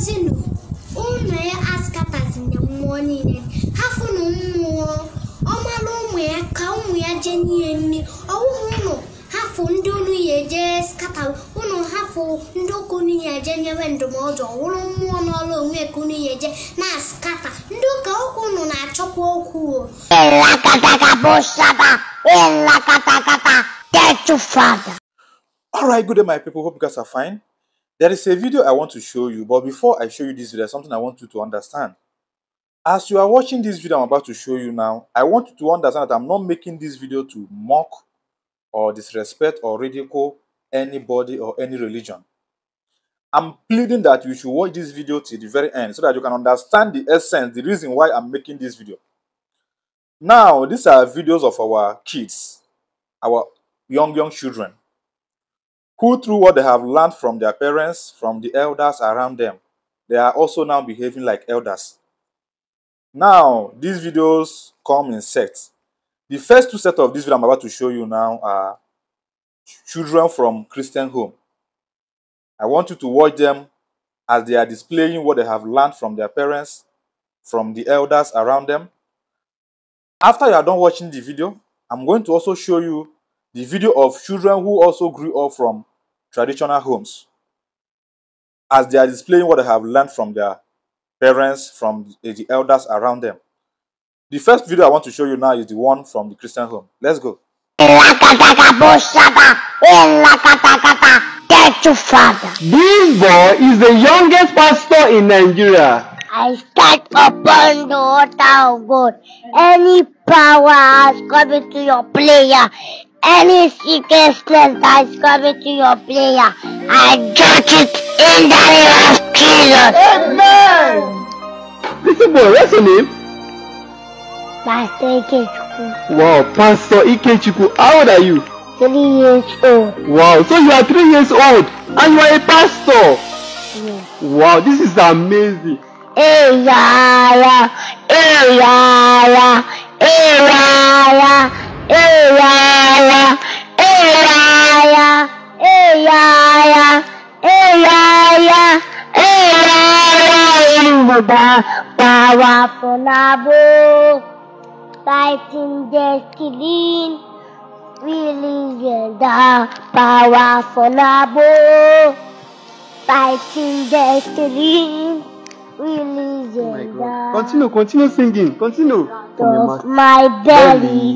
mkpọtinu ụmụ ya askatazina mmụọ niile ha fụnụ mmụọ ọmalụ ụmụ ya ka ụmụ ya jee n'ihe nri ọwụhụ ụnụ hafụ ndị unu ya eje skata ụnụ hafụ ndị ụka unu ya eje nyewe ndụmọdụ ọwụrụ mmụọ n'ọrụ onwe ka unu ya eje na skata ndị ụka ụka unu na-achọkwa okwu All right, good day, my people. Hope you guys are fine. There is a video I want to show you, but before I show you this video, something I want you to understand. As you are watching this video I'm about to show you now, I want you to understand that I'm not making this video to mock or disrespect or ridicule anybody or any religion. I'm pleading that you should watch this video till the very end so that you can understand the essence, the reason why I'm making this video. Now, these are videos of our kids, our young, young children who, through what they have learned from their parents, from the elders around them, they are also now behaving like elders. Now, these videos come in sets. The first two sets of this video I'm about to show you now are children from Christian home. I want you to watch them as they are displaying what they have learned from their parents, from the elders around them. After you are done watching the video, I'm going to also show you the video of children who also grew up from traditional homes as they are displaying what they have learned from their parents, from the elders around them. The first video I want to show you now is the one from the Christian home. Let's go. This boy is the youngest pastor in Nigeria. I stand upon the altar of God. Any power has come into your player any secret that is coming to your player, I judge it in the name of Jesus. Amen. This boy, what's your name? Pastor Ikechukwu. Wow, Pastor Ikechukwu, how old are you? Three years old. Wow, so you are three years old and you are a pastor. Yes. Wow, this is amazing. Hey, yeah, yeah. Afọlábọ̀ fighting destiny, really yẹ̀dá power Afọlábọ̀ fighting destiny, really yẹ̀dá. Continue, continue singing, continue. my belly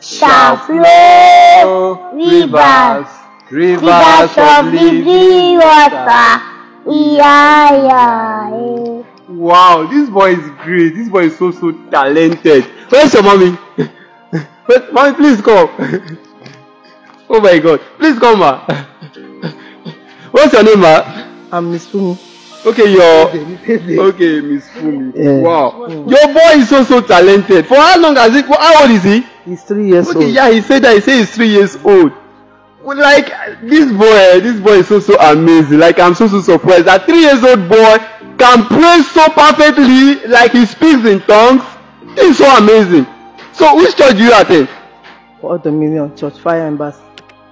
shall flow rivers, rivers of living water. Yeah, yeah, yeah. Wow, this boy is great. This boy is so so talented. Where's your mommy? Wait, mommy, please come. oh my god. Please come, ma. What's your name, ma? I'm Miss Fumi. Okay, your okay, Miss Fumi. Yeah. Wow. Your boy is so so talented. For how long has he for how old is he? He's three years okay, old. Yeah, he said that he said he's three years old. Like this boy, this boy is so so amazing. Like I'm so so surprised. That three years old boy can pray so perfectly like he speaks in tongues it's so amazing so which church do you attend. all dominion church fire embassy.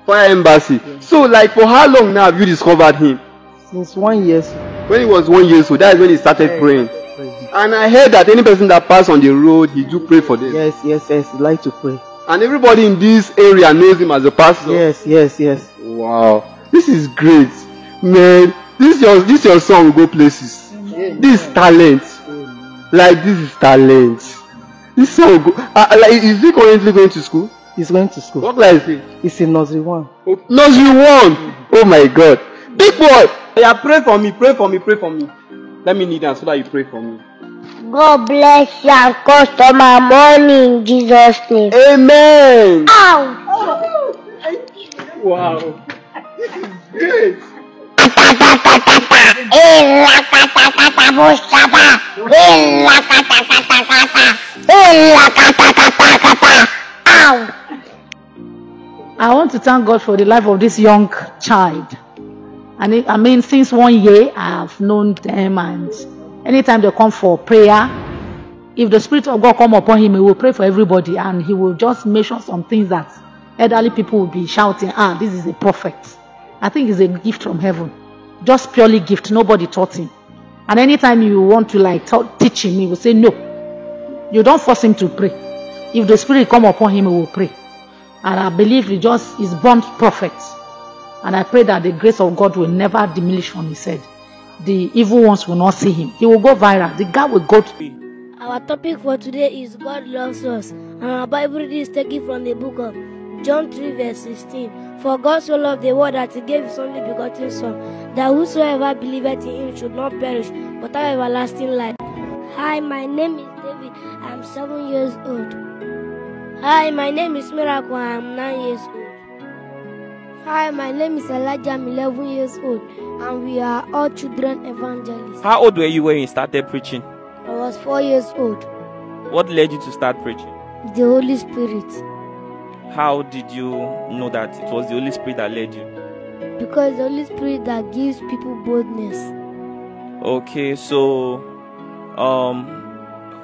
fire embassy yeah. so like for how long now have you discovered him. since one year so. when he was one year so that is when he started yeah, praying. praying and i heard that any person that pass on the road he do pray for them. yes yes yes he like to pray. and everybody in this area knows him as a pastor. yes yes yes. wow this is great man this your this your song go places. this is talent like this is talent this son go uh, like is he currently going to school. he's going to school. what class is he. he's in nursery one. Oh, nursery one oh my god big boy. oya pray for me pray for me pray for me let me kneel down so that you pray for me. God bless you and customer money in Jesus' name. Amen. Ow! Oh, wow. this is great. I want to thank God for the life of this young child. And it, I mean, since one year, I have known them, and anytime they come for prayer, if the Spirit of God come upon him, he will pray for everybody, and he will just make sure some things that elderly people will be shouting, ah, this is a prophet. I think it's a gift from heaven. just purely gift nobody taught him and anytime you want to like talk, teach him he will say no you don't force him to pray if the spirit come upon him he will pray and i believe he just is born prophet and i pray that the grace of god will never diminish from his head the evil ones will not see him he will go viral the guy will go to. be. our topic for today is god loves us and our bible is taken from the book of John 3, verse 16. For God so loved the world that he gave his only begotten Son, that whosoever believeth in him should not perish, but have everlasting life. Hi, my name is David. I'm seven years old. Hi, my name is Miracle. I'm nine years old. Hi, my name is Elijah. I'm 11 years old, and we are all children evangelists. How old were you when you started preaching? I was four years old. What led you to start preaching? The Holy Spirit. How did you know that it was the Holy Spirit that led you? Because the Holy Spirit that gives people boldness. Okay, so um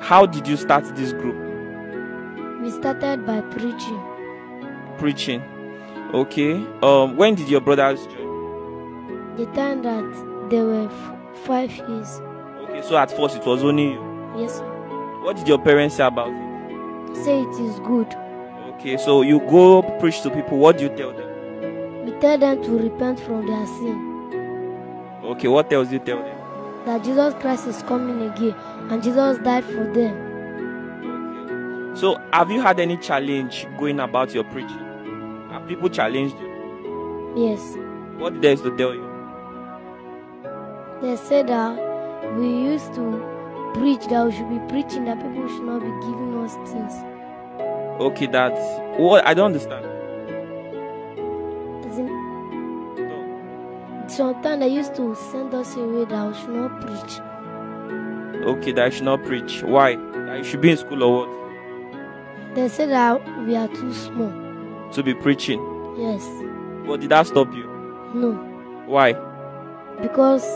how did you start this group? We started by preaching. Preaching. Okay. Um when did your brothers join? The time that they were f- five years. Okay, so at first it was only you? Yes. Sir. What did your parents say about it? Say it is good. Okay, so you go preach to people. What do you tell them? We tell them to repent from their sin. Okay, what else do you tell them? That Jesus Christ is coming again and Jesus died for them. So, have you had any challenge going about your preaching? Have people challenged you? Yes. What did they used to tell you? They said that we used to preach that we should be preaching that people should not be giving us things. Okay, that's what I don't understand. Sometimes they used to send us away that I should not preach. Okay, that I should not preach. Why? That you should be in school or what? They said that we are too small. To be preaching? Yes. But did that stop you? No. Why? Because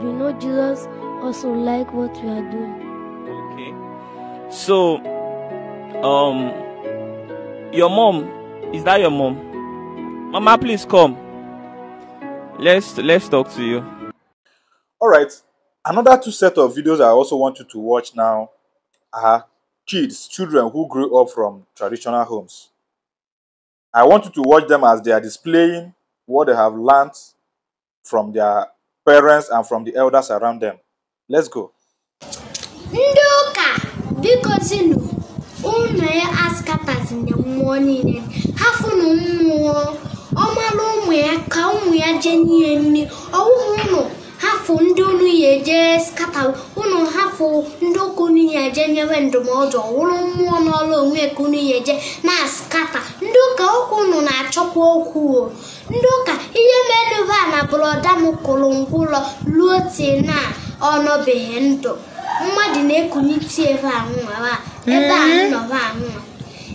you know Jesus also like what we are doing. Okay. So um your mom, is that your mom? Mama, please come. Let's let's talk to you. All right. Another two set of videos I also want you to watch now are kids, children who grew up from traditional homes. I want you to watch them as they are displaying what they have learned from their parents and from the elders around them. Let's go. Ndoka, because you know. unu ya e askatazina mmụọ niile hafụnụ mmụọ ọmalụ ụmụ ya ka ụmụ ya jee n'ihe nri ọwụhụ ụnụ hafụ ndị unu ya eje skata ụnụ hafụ ndị ụka unu je eje nyewe ndụmọdụ ọwụrụ mmụọ n'ọrụ onwe ka unu ya eje na skata ndị ụka okwu unu na-achọkwa okwu o ndị ụka ihe merube na bụrọda m kụrụ ngwụlọ ruo tie na ọ ndụ mmadụ na-ekunye tii ebe a nwa ebe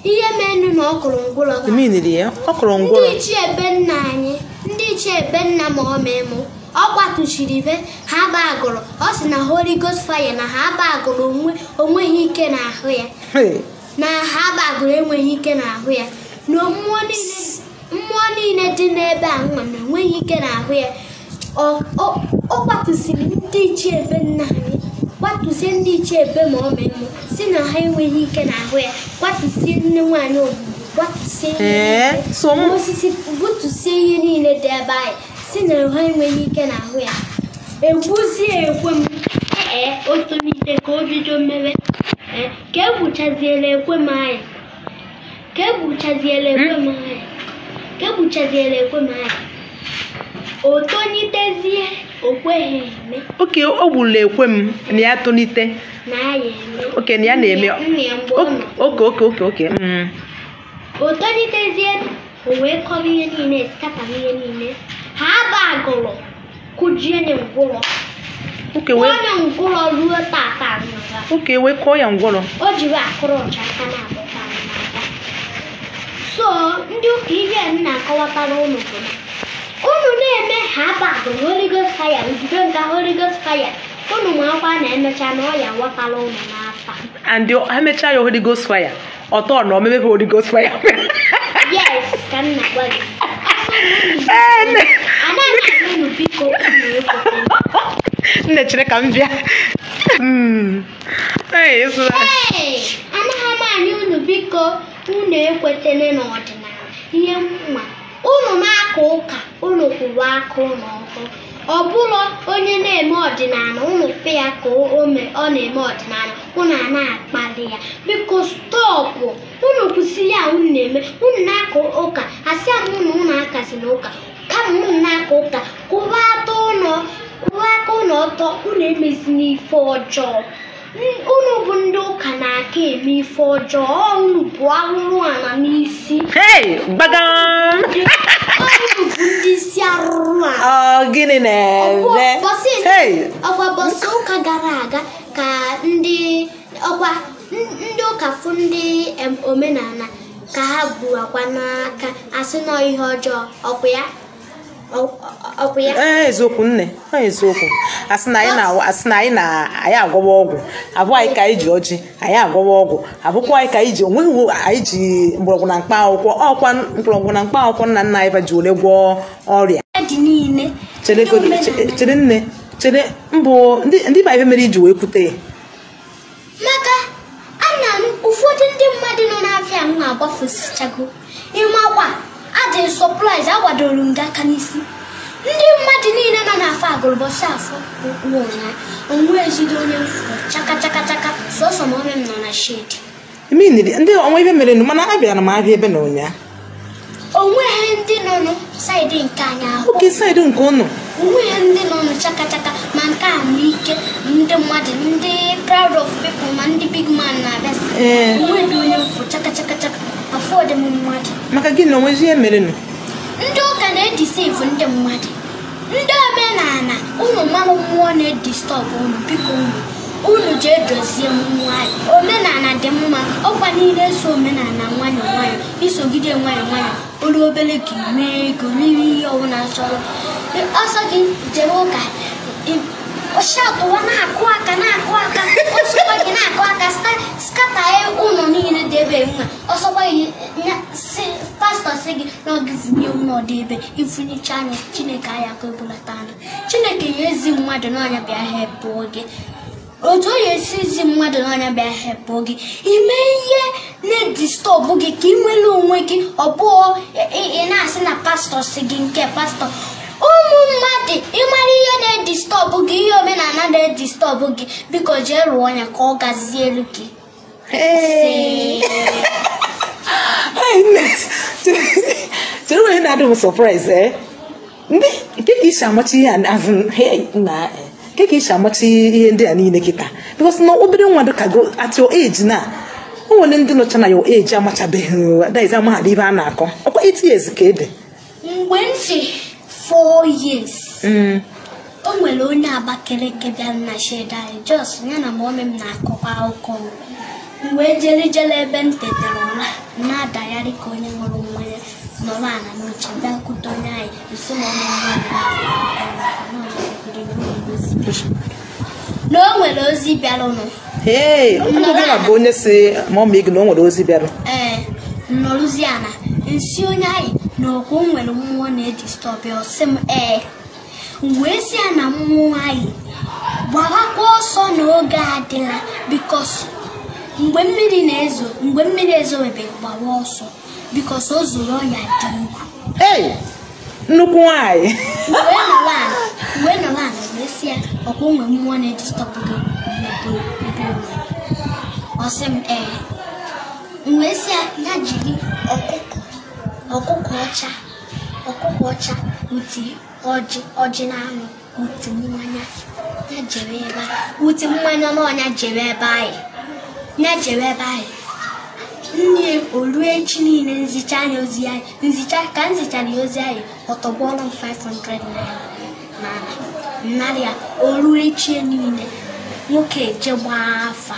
ihe mere na ọ kụrụ ndị ichie ebe nna anyị ndị ichie ebe nna ma ọ ọ be ha aba agụrụ ọ sị na holy ghost fire na ha aba agụrụ onweghị ike ahụ ya na ha aba agụrụ enweghị ike n'ahụ ya na mmụọ niile dị n'ebe a nwa na enweghị ike ahụ ya ọ kwatụsiri ndị ichie ebe nna anyị kwatuzie ndị iche ebe ma ọ mụ si na ha enweghị ike n'ahụ ya kwatuzie nne nwaanyị ogbugbo kwatusie osisi ihe niile dị ebe anyị si na ha enweghị ike n'ahụ ya egwuzie ekwe m ee o ka o mmewe ka egbuchaziela ekwe m otonitezie okweghị eme oke o ekwe m na ya tonite na ya eme oke na ya na-eme oke oke oke oke o wee kọrọ ihe niile niile ha agụrụ kụjie na ngwụrọ oke wee ngwụrọ ruo oke wee kọọ ya ngwụrọ o jiri akụrụ na so ndị ụka ihe na-akọwatara ụlọ unu na-eme ha bapụ Holy Ghost fire nzuzo nke Holy Ghost fire unu akwa na emecha na ọya wapala unu n'afa and ha mechaa ya Holy Ghost fire ọtọ na omebe Holy Ghost fire yes ka m na-agwa gị anaghị unu biko nne chere ka m bịa hmm. anaghị m anya unu biko unu ekwetene n'ọdịnala ihe mma unu m. aka ụka unu kwụwa aka ụlọ ọkụ ọ bụrụ onye na-eme ọdịnala unu fe ya ka ome ọ na-eme ọdịnala unu a na-akpali ya biko stọpụ unu kwụsịrị ya unu na-eme unu na-aka ụka asị m unu unu akazi na ụka kama unu na-aka ụka kwụwa aka ụlọ ọtọ unu emezina ife ọjọọ unu bụ ndị ụka na-aka eme ife ọjọọ unu bụ ahụhụ ala n'isi gịnị na-eme bọsị ụka gara aga ka ndị ọkwa ndị ụka fụ ndị omenala ka ha bu akwa n'aka asị nọ ihe ọjọọ ọkwa ya ee eziokwu nne ọ eziokwu asị na anyị na anyị agwọwa ọgwụ abụọ anyị ka anyị ji ọjị anyị agwọwa ọgwụ abụkwa anyị ka anyị ji onweghị anyị ji mgbọrọgwụ na mkpa akwụkwọ ọkwa mgbọrọgwụ na mkpa akwụkwọ nna nna anyị ba ji ole gwọọ ọrịa chere nne chere mbụ ndị ba ife mere iji wee kwute maka ana ụfọdụ ndị mmadụ nọ n'afịa na agbafusichago n'ime ọkwa adị sọplaiz agwadoro m gị aka n'isi ndị mmadụ niile nọ n'afọ agụrụbọsị afọ ụkwụ ụnya onwe ezigbo onye chaka chaka chaka sọsọ ma ome m nọ na shedi ndị ọnwa ibe mere nụ mana abịara m abịa ebe na ụnya onweghị ndị nọ nụ saịdị nke anyị ahụ oke saịdị nke ụnụ onweghị ndị nọ nụ chaka chaka ma nke a ndị mmadụ ndị proud of people ma ndị big man na-abịa onwe dị onye mfụ chaka chaka chaka afọ ọdịm mmadụ maka gị na onwezi ihe merenụ ndị ụka na-edisevụ ndị mmadụ ndị omenala unu mmanụ mmụọ na-edistọb unu biko unu unu ji edozie nwanyị omenala dị mma ọkwa niile so omenala nwayọ nwayọ isogide nwayọ nwayọ olu obere gị mee ego mere ihe ọbụla chọrọ ọsọ gị jere ụka ọshatụ na akụ aka na akụ aka ọsọkwa gị na-akụ aka skata ya ụlọ niile dị ebe nwa ọsọkwa gị pastọ si na ọ ebe ifunyecha anya chineke anya ka ebulata chineke ya ezi mmadụ otu onye esi ezi mmadụ n'anya bịa hepụọ gị ime ihe na-edistọbụ gị ka ị nwere onwe gị ọ ị na-asị na pastọ si gị nke pastọ mmadụ ịmara ihe na-edistọbụ gị ihe omenala na-edistọbụ gị biko jee rụọ ya ka ọ gazielu gị chere onye na-adụ m sọpraịz eh? ndị keka isi amacha ihe na eh, keka isi amacha ihe ndị a niile kịta bikos na obere nwa dịka go at your age na o nwere ndị nọcha na your age amachabeghị daiz amahadị ibe a na-akọ ọkwa 8 years ka ị dị. mgbe ntị four years mm. o nwere onye Abakaliki bịara na sheda anyị e jos ya na mọmị m na-akọkwa akụkọ mgbe jere jere ebe m tetere ụra na-adagharị ka onye nwere ṅụrụ mmanya nọrọ ala n'oche bịakwute onye anyị nso na o nwere ozi Ee, bịarụ nụ na onye si mọmị gị na o nwere ozi bịarụ ee eh, nọrụziana nsi onye anyị na ọkụ mmụọ na-edistọbị ọsị m ee wee si na mmụọ anyị gbawakwa ọsọ n'oge adịla bikos mgbe mmiri na-ezo mgbe mmiri ọsọ bikos o zuru ọnya dị nnukwu ya ọkwa onwe mmụọ na mgbe si ya jiri ọkụkọ ọcha ọkụkọ ọcha uti ọjị ọjị na anụ uti mmanya ya jere ebe anyị uti mmanya n'ọnya jere ebe anyị ya jere ebe anyị nne olue echi niile nzicha anyị ozi anyị nzicha ka m zichara ya ozi anyị ọtọgbọọlụ m 500 na narị ya olue echi niile nwoke je gbaa afa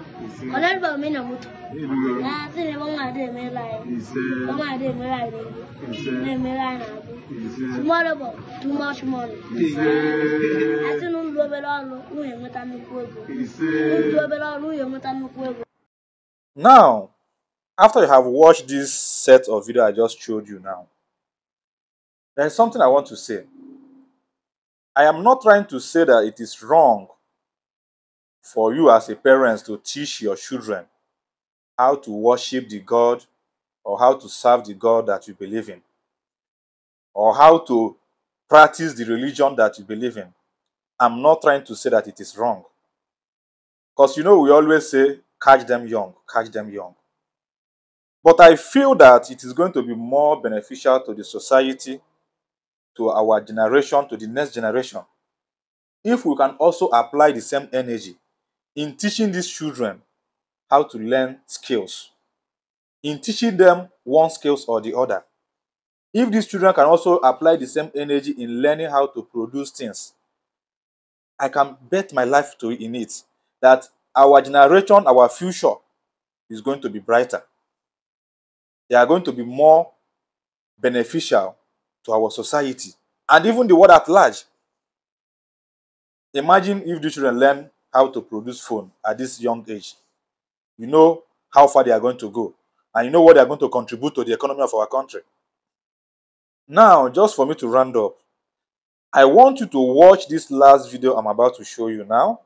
Kolerba mi na mutu. Na si ne bonga de mi lai. Bonga de mi lai de. mi lai na. Tomorrow bo, too much money. Asi nu ndu obere ọrụ nwunye nweta nnukwu ego. Ndu obere ọrụ nwunye nweta nnukwu ego. Now, after you have watched this set of video I just showed you now, there is something I want to say. I am not trying to say that it is wrong for you as a parent to teach your children how to worship the God or how to serve the God that you believe in or how to practice the religion that you believe in. I'm not trying to say that it is wrong. Because you know, we always say, catch them young, catch them young. But I feel that it is going to be more beneficial to the society, to our generation, to the next generation, if we can also apply the same energy in teaching these children how to learn skills, in teaching them one skills or the other. If these children can also apply the same energy in learning how to produce things, I can bet my life to in it that our generation, our future is going to be brighter. They are going to be more beneficial to our society and even the world at large. Imagine if the children learn how to produce phone at this young age. You know how far they are going to go. And you know what they are going to contribute to the economy of our country. Now, just for me to round up, I want you to watch this last video I'm about to show you now.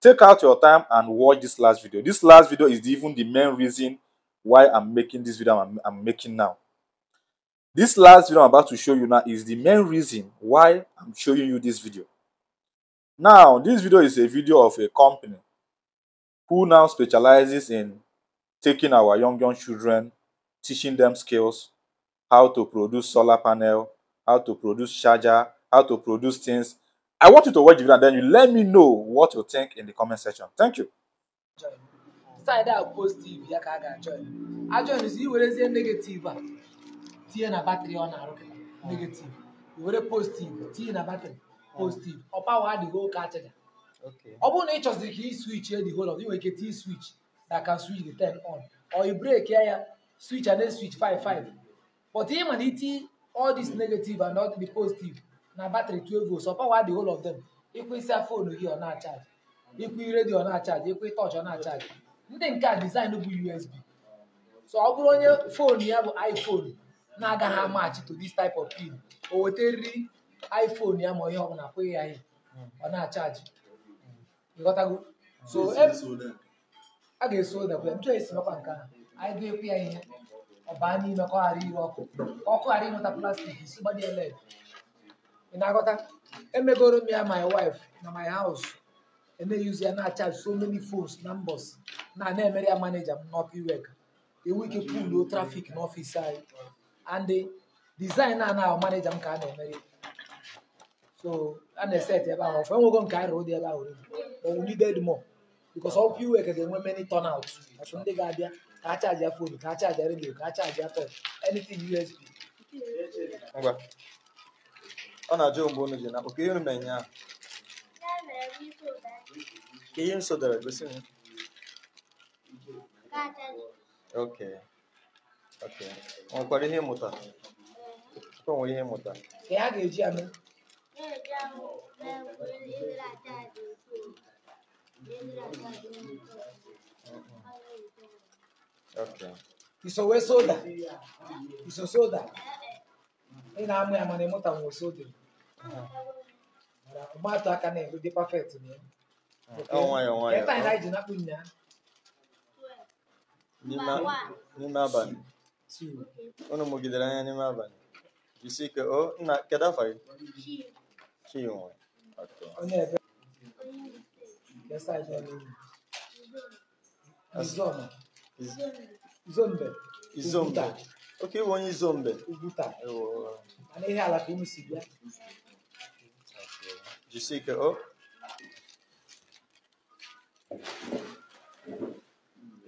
Take out your time and watch this last video. This last video is even the main reason why I'm making this video I'm, I'm making now. This last video I'm about to show you now is the main reason why I'm showing you this video. Now, this video is a video of a company who now specializes in taking our young, young children, teaching them skills, how to produce solar panel, how to produce charger, how to produce things. I want you to watch the video and then you let me know what you think in the comment section. Thank you. negative pozitiv ọ pawa adịghị oke achaja ọ bụrụ na ị chọziri ka ị swich edi holo ị nwere ike tii swich na ka swich the ten on or i break ya ya swich and then swich 55 but ị ma na iti all this negative and all the positive na batrị 12 volts ọ pawa adịghị all of them ịkwụ isi fonu gị ọ na-achaji ịkwụ redio ọ na-achaji ịkwụ tọọchị ọ na-achaji ndị nke a design bụ USB so ọ bụrụ onye fonu ya bụ iPhone na-agaghị amachi to this type of pin o weta nri. iphone ya ma ihe ọ bụla akwụghị ya ihe ọ na-achaji ịghọtago so a ga-eso dakwa ya ntụọ esi mekwa nke a anyị ga-ekwu ya ihe ọ baa n'ime ka ọ ghara ire ọkụ ka ọkụ ghara ịnweta plastik isi gbadie leg ị na-aghọta emegoro m ya my wife na my house na-eyuzi ya na-achaji so many phones na mbọs na na-emere ya maneja m n'ọkụ iwek ewu ike puluo trafik n'ọfịs anyị and design a na maneja m ka a na-emere so a na-eset ebe ahụ ọfọ enwego nke anyị rụrụ dị ebe ahụ oriri but we needed more because ọ ga-enwe many turnout ọtụ ndị ga-abịa ka a afọ fonu ka a chaji redio ka a chaji touch anything USB ngwa ọ na-ajụ mgbe unu na oke ihe unu ahụ ka ihe gosi m Perdão, eu fui hidratado. Okay. Isso é soda. Isso é soda. E na minha mãe monta um soda. O mato a cane, o de perfeito, né? É um é um é. Está em raiz na cunha. Nima, nima ban. Sim. O nome que dela é nima ban. Disse que o na que dá faz. Sim. 器用あと。Izombe. Oh, Izombe. onye Izombe. Uguta. Mana ihe ala ka unu si bịa. Jisie ike o.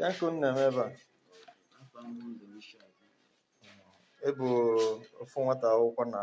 Ya ka unu na-eme ebe a. Ebu ofu nwata akwụkwọ na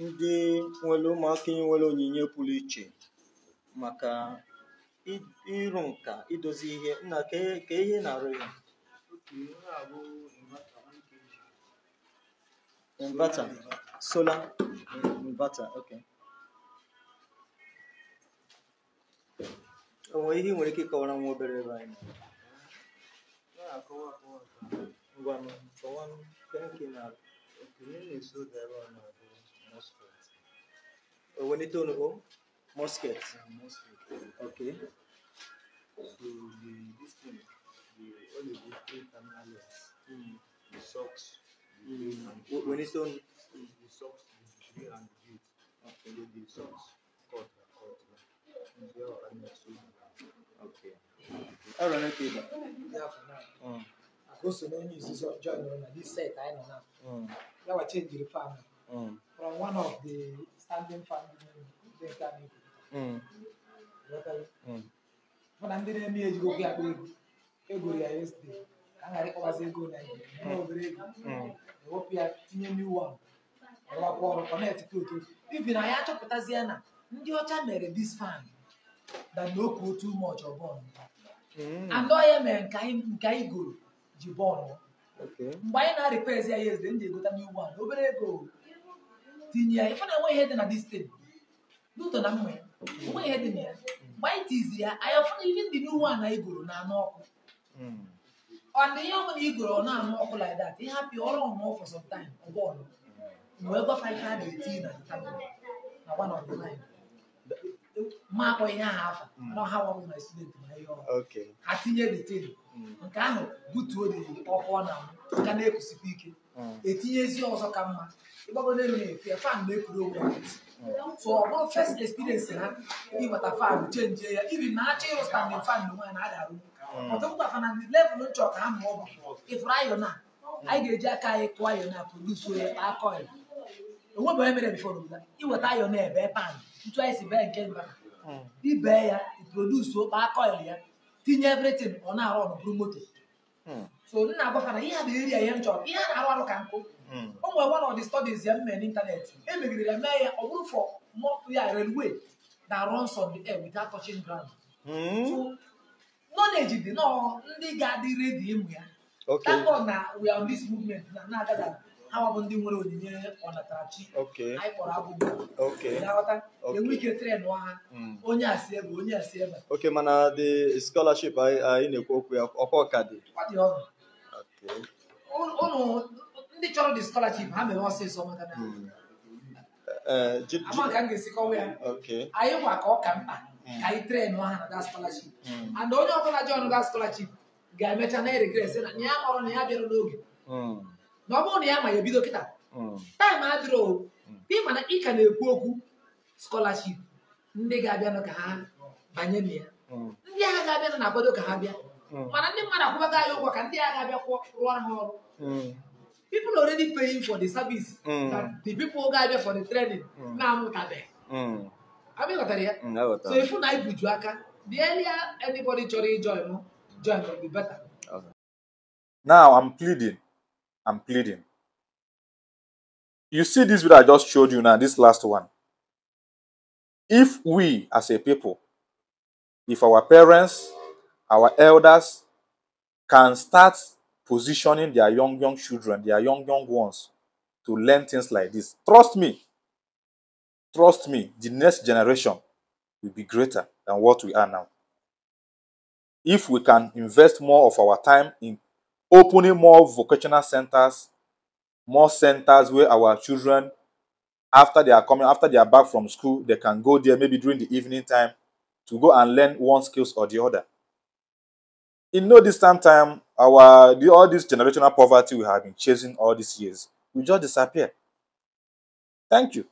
ndị nwere ụmụaka nwere onyinye pụrụ iche maka ịrụ nka idozi ihe nna e, ka ihe na-arụ ya inverter solar inverter okay onwe ihe nwere ike ịkọwara nwa obere ebe anyị ngwa kọwa nke na-eso debe ọnọdụ Owenitonogo, Musket. muskets. Okay. So the, this the, the the socks, when it's done the socks, the and the The, socks cut, cut, and are Okay. Yeah, for now. I mm. to I know now. Mm. I change the Uh, one of the standing family ndị nke anyị mana eme ya a ego naijiria obere ego ewepụ ya tinye na ndị ọcha mere dis fan na ya mere nke anyị goro ji mgbe anyị na ya ndị egota new one obere ego tinye ya ife na enweghị ihe dị na distin n'ụtọ na mma ya onwe ihe dị na ya mgbe anyị tizi ya anyị afụna ihe ndị n'uwe a na igoro na-anụ ọkụ ọ dị ihe ọbụla igoro na-anụ ọkụ like that ịhapụ ọrụ ọmụọ ọfọsọ some time ọgbọọlụ wee gwafa ihe a na-eti na tabụl na gbanọdụ anyị makpọ ihe ahụ afa nọ ha nwa mm. na student na ihe ọhụrụ ha tinye detin mm. nke ahụ butuo dị ọkụ na ka na-ekusikwa ike mm. etinye ezi ọzọ ka mma ịgbagodo elu na-efe fan na ekwuru onwe ya so ọgbọ bụrụ first experience ha ịgbata fan chenji ya iri na-achọ ịrụstandin fan na nwaanyị na-adarụ ọtụtụ fa na ndị level nchọ ka ha ma ọ bụ ịfụrụ ayọ na anyị ga-eji aka anyị kụọ ayọ na produce ya akọ ya. onwe bụ emere bifo rụbụta iweta ayọn ebe pan ntu anyị si bee nke mba hmm. ibee ya produce okpa kọil ya tinye evritin ọ na-arụ ọrụ bụrụ moto hmm. so m na-agbakọta ihe a na-eri ihe m chọrọ ihe a na-arụ arụ ka nkụ o nwere one of the studies ya m mere emegidere e ya mee ya ọ bụrụ fọ ya railway na runs on the air without touching ground hmm. so knowledge dị nọọ ndị ga-adị redi ịmụ ya tabo na we are on this movement na na-agada ha bụ ndị nwere onyinye ọnatarachi anyị kpọrọ abụbụ enwe ike tren ha hmm. onye asị ebe onye asị ebe oke mana dị scholarship anyị na-ekwu okwu ya ọkwa ka dị ụnụ ndị chọrọ the scholarship ha mere ọsịsọ maka na hmm. eh, eh, ama ka m ga ya anyị ka mkpa hmm. ka anyị ha na that scholarship and onye ọbụla jọn that scholarship ga-emecha na na ya kpọrọ na ya bịara n'oge na ọ na ya ma ya bido kịta taịm adịrọ ịma mana ị ka na-ekwu okwu skọlaship ndị ga-abịanụ ka ha banye na ya mm. ndị agha ga-abịanụ na-akwado ka ha bịa mm. mana ndị mmadụ akwụbaga ya ụgwọ ka ndị agha ga-abịa rụọ ha ọrụ mm. people already paying for the service that the people ga-abịa for the training na-amụtabeghị ya so ifu na ibuju aka the earlier anybody chọrọ ijoin join now I'm pleading and pleading. You see this video I just showed you now, this last one. If we as a people, if our parents, our elders can start positioning their young, young children, their young, young ones to learn things like this, trust me, trust me, the next generation will be greater than what we are now. If we can invest more of our time in opening more vocational centers, more centers where our children, after they are coming, after they are back from school, they can go there maybe during the evening time to go and learn one skills or the other. In no distant time, our the, all this generational poverty we have been chasing all these years will just disappear. Thank you.